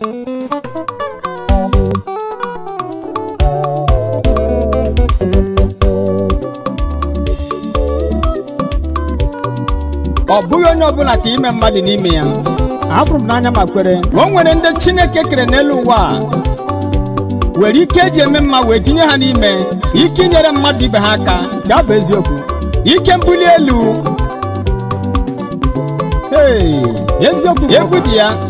ọ bụghị onye ọ bụla ka ime mmadụ n'ime ya afụrụ m n'anya ma kwere o nwere ndị chineke kere n'elu ụwa a were ike eji eme mma wee tinye ha n'ime ike inyere mmadụ ibe ha aka ga bụ eziokwu ike mbuli elu ee eziokwu egwu dị ya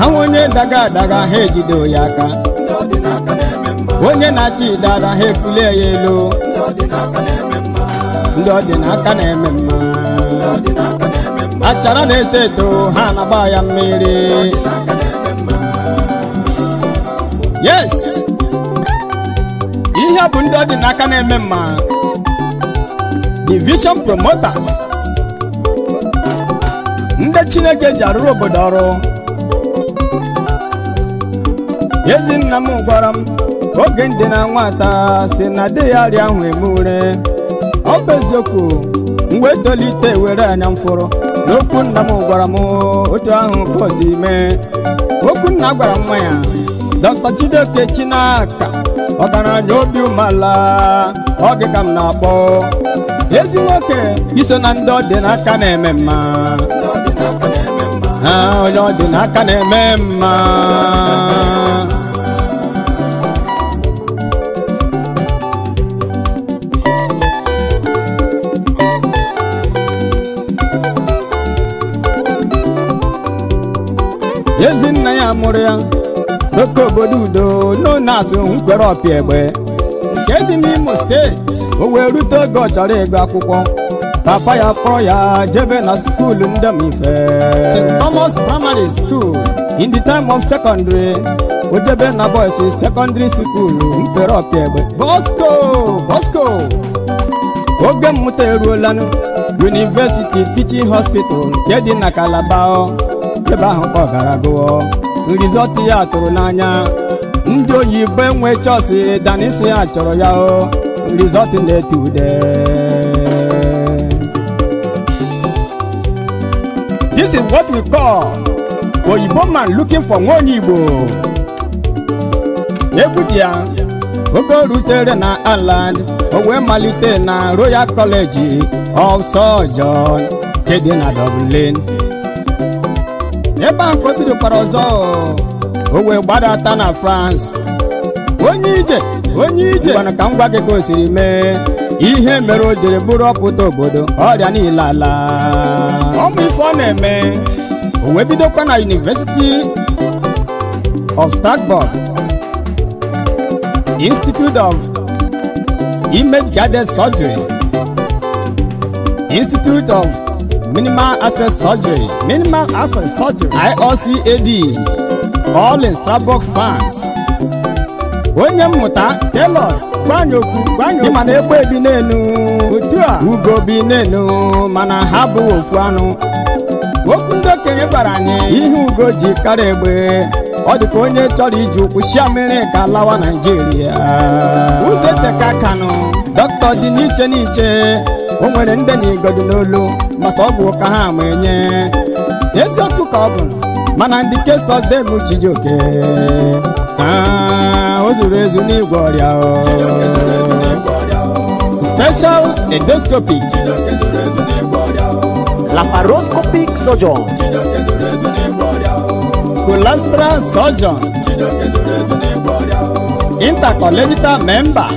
ha onye daga adaga ha ejide ya aka onye na-achị idada ha efulie ya elu ndị ọdịnaka na-eme mma achara na-eto eto ha na-agba ya mmiri yes ihe bụ ndị ọdịnaka na-eme mma vision promoters ndị chineke ji arụrụ obodo ọrụ ezi nna m gwara m oge ndịna nwata si na di ya rịa ahụ eme ure ọ bụ eziokwu mgbe tolite were anya mfụrụ n'okwu nna m gwara m otu ahụ bọs ime okwu nna gwara nwa ya dr Chidoke Chinaka ọgaranya obi umeala ọ dị ka m na-akpọ ezi nwoke iso na ndị ọ n'aka na-eme mma onye ọ n'aka na-eme mma ya mụrụ ya oke obodo udo nona azụ nkwerọpịa egbe nke dị n'imo steeti o wee rute oge ọ chọrọ ịgụ akwụkwọ papa ya kpọrọ ya jebe na skuulu ndemife st thomas primary school in the time of secondary o jebe na boys secondary school nkwerọpịa egbe bosco bosco oge mmụta eruolanụ university teaching hospital nke dị na kalaba ebe ahụ gara gụọ rizọtụ ya tụrụ n'anya ndị oyibo enwe chọọsị danisi ya chọrọ ya o rizọtụ na-etu ude this is what we call oyibo man looking for nwa onye igbo egwu dị ya oge o rutere na Ireland o wee malite na Royal College of Surgeons nke dị na Dublin ebe a ka o bidokwara ọzọ o wee gbadata na France onye ije onye ije gwana ka m gwa gị ka mee ihe mere o jiri bụrụ ọpụta obodo ọrịa niile ala ọmụ ife ọ na-eme o wee bidokwa na University of Strasbourg Institute of Image Guided Surgery Institute of minimal access surgery minimal access surgery IOCAD all in Strasbourg France onye mmụta telos gbanye okwu mana egbe bi n'enu otu a ugo bi n'enu mana ha bụ ofu anụ okwu ndị okenye gwara anyị ihe ugo ji karịa egbe ọ dị onye chọrọ iji ụkwụ shia mmiri ka lawa Naịjirịa Uze Teka Kanụ dọkịta dị n'iche n'iche o nwere ndị na n'olu masa ọ bụ ụka ha ma enye eziokwu ka ọ bụ mana ndị kesọdem Chijioke o zuru ezu n'igwe ọrịa special endoscopic laparoscopic surgeon colastral surgeon intercollegital member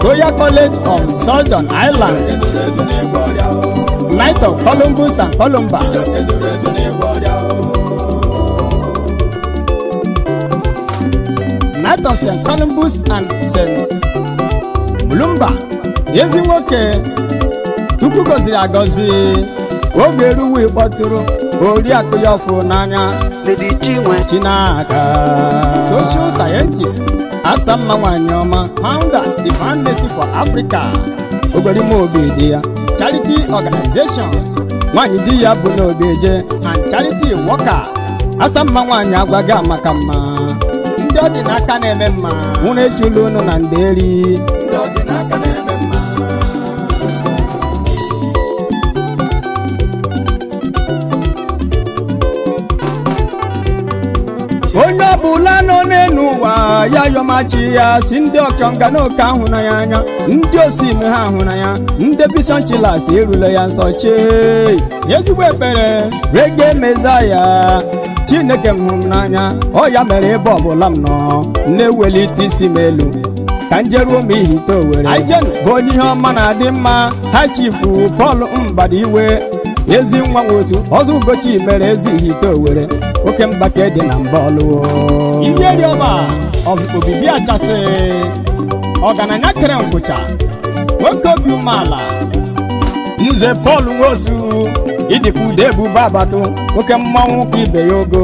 goya College of southern Island, Knight of Columbus and Columbus. Knight of St. Columbus and St. Mulumba, ezi nwoke Chukwu gọziri agọzi oge eruwe kpọtụrụ oriakụ ya ọfụ n'anya Chinaka social scientist asta mma nwanyị ọma founder the for africa obi dị ya charity organization nwanyị di ya bụ n'obeje and charity worker asta mma nwanyị agwaghị amaka mma ndị ọ dị n'aka na-eme mma nwụrụ echulu ụnụ na ndị eri ndị na-eme ọbụla nọ n'elu ụwa ya yọmachi ya si ndị ọkọnga na oke ahụ na ya anya ndị osime ha ahụ na ya ndị erule ya nsọ chee ezigbo ekpere rege ya chineke m n'anya ọ ya mere ebe ọbụla m nọ na-ewelite isi m elu ka njeruo m ihite owere bụ onye ihe ọma na-adị mma ha chifu Pọl iwe. ezi nwa nwosu ọzọ ugochi mere ezighi ite owere oke mgbake dị na mba ọlụwo ọba, obibi achasị ọgaranya kere ngwụcha nwoke obi umeala nze Pọl nwosu ịdịka ude ebube abatụ nwoke mmanwụ ka ibe ya ogo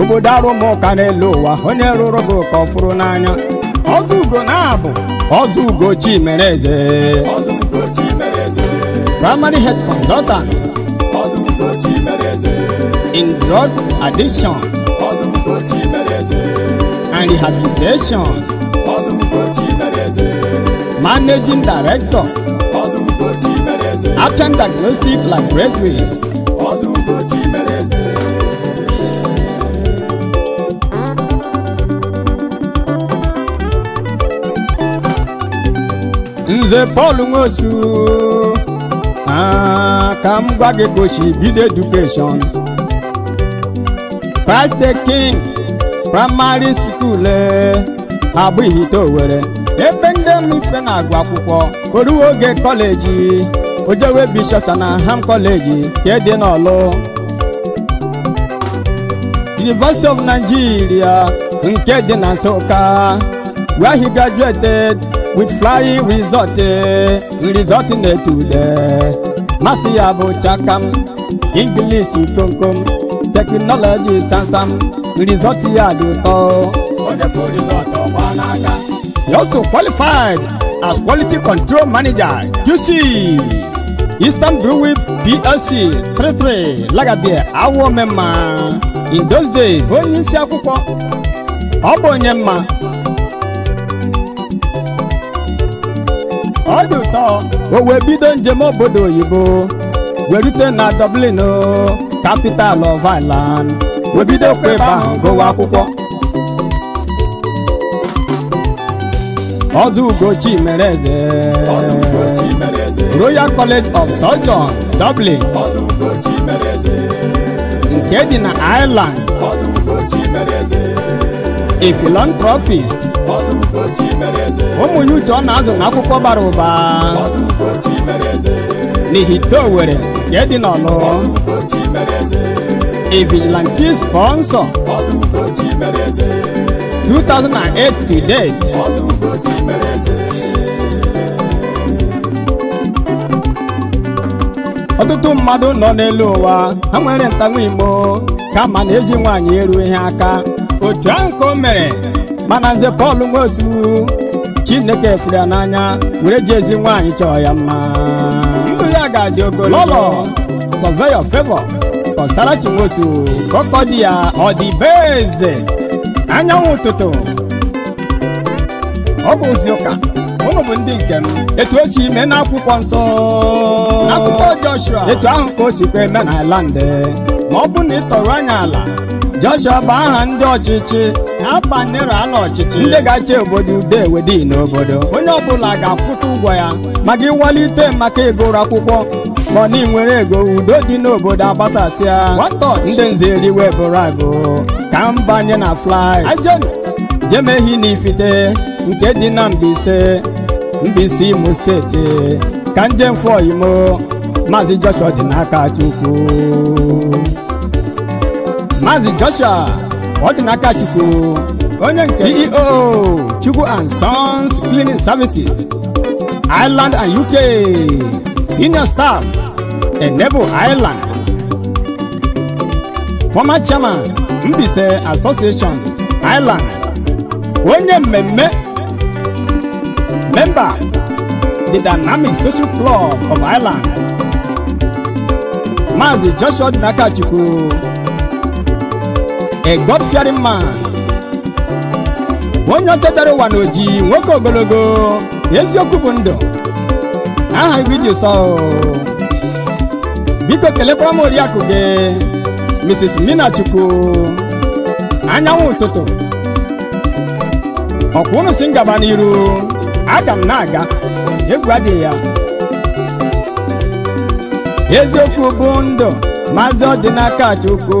obodo arụmụka n'elu ụwa onye rụrụ gị ụka ọ fụrụ n'anya ọzọ ugo na-abụ ọzọ ugochi mere eze primary health consultant in drug addiction and rehabilitation, managing director, Appian Diagnostic Laboratories. Nze Paul Nwosu ka m gwa gị gosi bido edukeshọn Christ the King praịmarị skuul eh, abụghị ite owere. ebe ndị mfe na-agụ akwụkwọ oruwe oge kọleji ojewe bishọpta na ham kọleji ka edị n'ọlụ University of Nigeria nke dị na Nsụka where he graduated with flying resort result eh, na ule Masia bụ chakam Ingilishi komkom teknọlọji samsam rizọtụ ya dị oh, ụtọ He also qualified as quality control manager QC Eastern Brewing PLC 33 Lagabia Awo Memma in those days onye isi akwụkwọ ọ bụ onye mma ọ dị o wee njem obodo oyibo wee rute na Dublin capital of Ireland wee bido kwa ebe ahụ gụwa akwụkwọ ọdụ Ugochi mere Royal College of Surgeons Dublin nke dị na Ireland a philanthropist ụmụnye uche ọ na-azụ na akwụkwọ bara ụba n'ihite Owerri nke dị n'ọlụ a vigilante sponsor 2008 to date ọtụtụ mmadụ nọ n'elu ụwa ha nwere ntanwa imo kama na ezi nwaanyị ihe aka otu ahụ ka o mere mana nze Pọl Nwosu Chineke furu ya n'anya were ji ezi nwaanyị chọọ ya mma ndụ ya ga-adị ogologo lọlọ survey your favor kọsara Chinwosu ka ọkọ di ya ọ dị be eze anyanwụ ụtụtụ ọ bụ ozi ụka ụnụ bụ ndị nke m etu o si ime n'akwụkwọ nsọ akwụkwọ Joshua etu ahụ ka o si kwe eme n'ala ndị ma ọ bụ na ị tọrọ anya ala Joshua bụ aha ndị ọchịchị na nera ndera ọchịchị ndị ga-achị obodo ude wedi n'obodo onye ọbụla ga-akwụta ụgwọ ya maka ịwalite maka ịgụrụ akwụkwọ ma ọ na nwere ego udo dị n'obodo agbasasịa ndị nze eriwe bụrụ agụ ka mbanye na flai jemehi na ifite nke dị na mbise Mbaise Imo steeti ka njem fọ imo maazị Joshua dị n'aka Chukwu Mazi Joshua Odinaka Chukwu onye nke CEO Chukwu and Sons Cleaning Services Ireland and UK Senior Staff Enable Ireland Former Chairman Mbise Association Ireland onye mmemme member the Dynamic Social Club of Ireland Mazi Joshua Odinaka Chukwu a God-fearing man onye ọchebịara ụwa n'oji nwoke ogologo eziokwu bụ ndụ aha igwe iji sọ biko kelekwara m gi gị Mrs. Minachukwu anyanwụ ụtụtụ ọkwa unu si ngaba n'iru aga m na-aga egwu adịghị ya eziokwu bụ ndụ maazị ọdịnaka Chukwu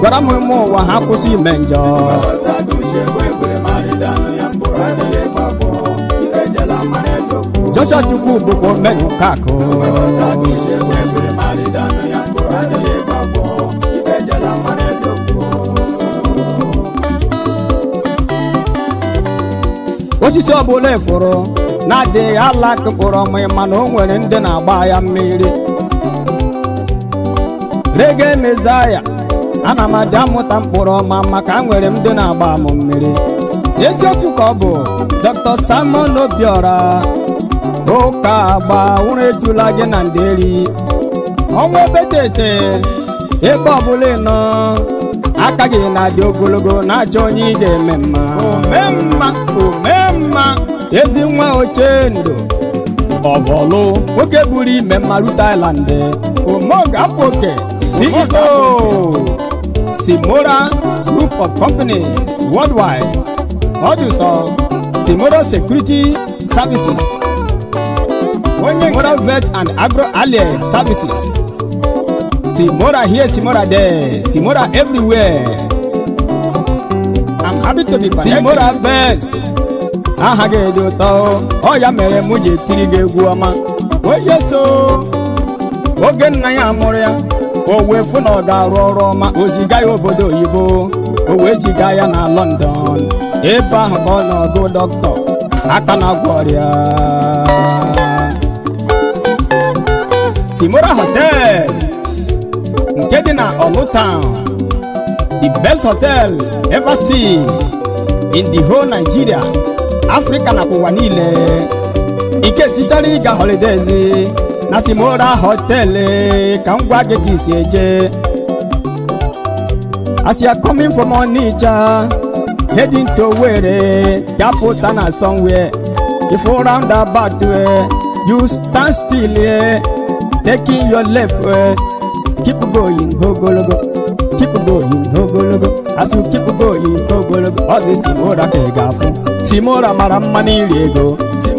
gwara m ime ụwa ha kwụsị ime njọ Joshua Chukwu bụkwa omenye nke akụ osisi ọbụla efuru na-adịghị alaka mkpụrụ ọmị mana o nwere ndị na-agba ya mmiri rege mezaya ana m adị amụta mkpụrụ ọma maka nwere m na-agba m mmiri eziokwu ka ọ bụ Dr. Simon Obiora ụka agba ụra ejula gị na nderi ọnwa obetete ebe ọbụla nọ aka gị na-adị ogologo na aja onye ị ga-eme mma omemma omemma ezi nwa oche ndụ ọvọlụ nwoke buru ime mmaru apụ oke Simora Group of Companies Worldwide Producer Simora Security Services Simora Vet and Agro-Allied Services Simora here, Simora there, Simora everywhere I'm happy to be connected Simora best aha gị dị ụtọ ọ ya mere mụ ji etiri gị egwu ọma oyeso oh, oge oh, nna o wee fụ ga-arụ ọrụ ọma o ziga ya obodo oyibo o wee ziga ya na London ebe ahụ ka ọ nọgụ dọkịta aka na-agwọ ọrịa Timora hotel nke dị na Olutown the best hotel ever seen in the whole Nigeria Africa na ụwa niile ike sichara ịga holidays nasimora hotele kangwage kiseje as you coming from onitsha heading to were japotana somewhere If before roundabout eh, you stand still eh, taking your left way. keep going ogologo keep going ogologo as you keep going ogologo ọ dị simora ka ị ga-afụ simora mara mma n'iri ego simora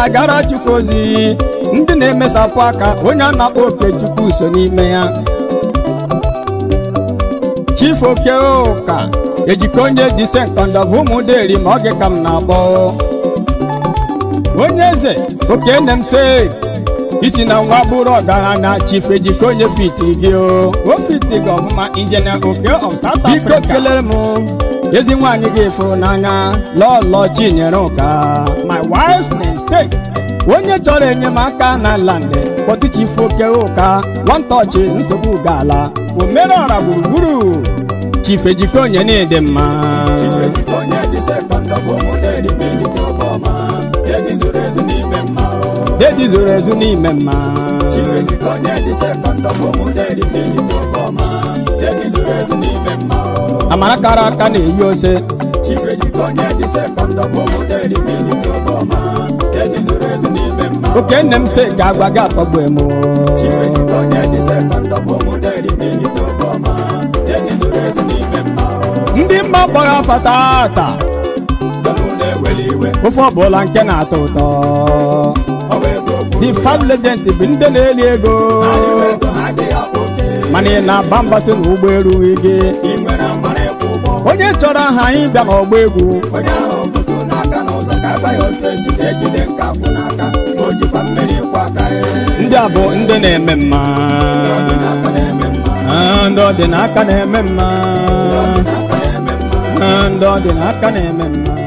na-agara chukwu ozi ndị na-emesapụ aka onye a na-akpọ oke chukwu n'ime ya chief oke ụka ejikọ onye dise nkọndọbụ ụmụ ma oge ka m na-agbọ onye eze oke nne se isi na nwa bụrụ ọgaranya chief ejike onye fitiri gị o o fitiri gị ọfụma injinia oke of South Africa biko kelere m ezi nwaanyị gị fụrụ n'anya lọlọ Chinyere Ụka my wife's namesake onye chọrọ enyemaka na London kpọtụchifu oke ụka nwantọchị nsogbu gaala omerọra gburugburu chief ejike onye dị na-ede mma dị zoro ezu n'ime mma amara kara aka na-eyi ose oke nne m se ga-agwa gị atọgbu emu ndị mma gbara afa taata ofe ọbụla nke na-atọ ụtọ the five legends bụ ndị na-eli ego mana ị na-agba mbasị na ụgbọ gị onye chọrọ aha anyị bịa n'ọgba egwu ndị a bụ ndị na-eme mma ndị ọdịnaka na-eme mma ndị ọdịnaka na-eme mma